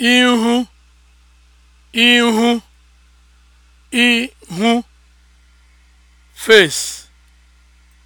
ihu ihu ihu face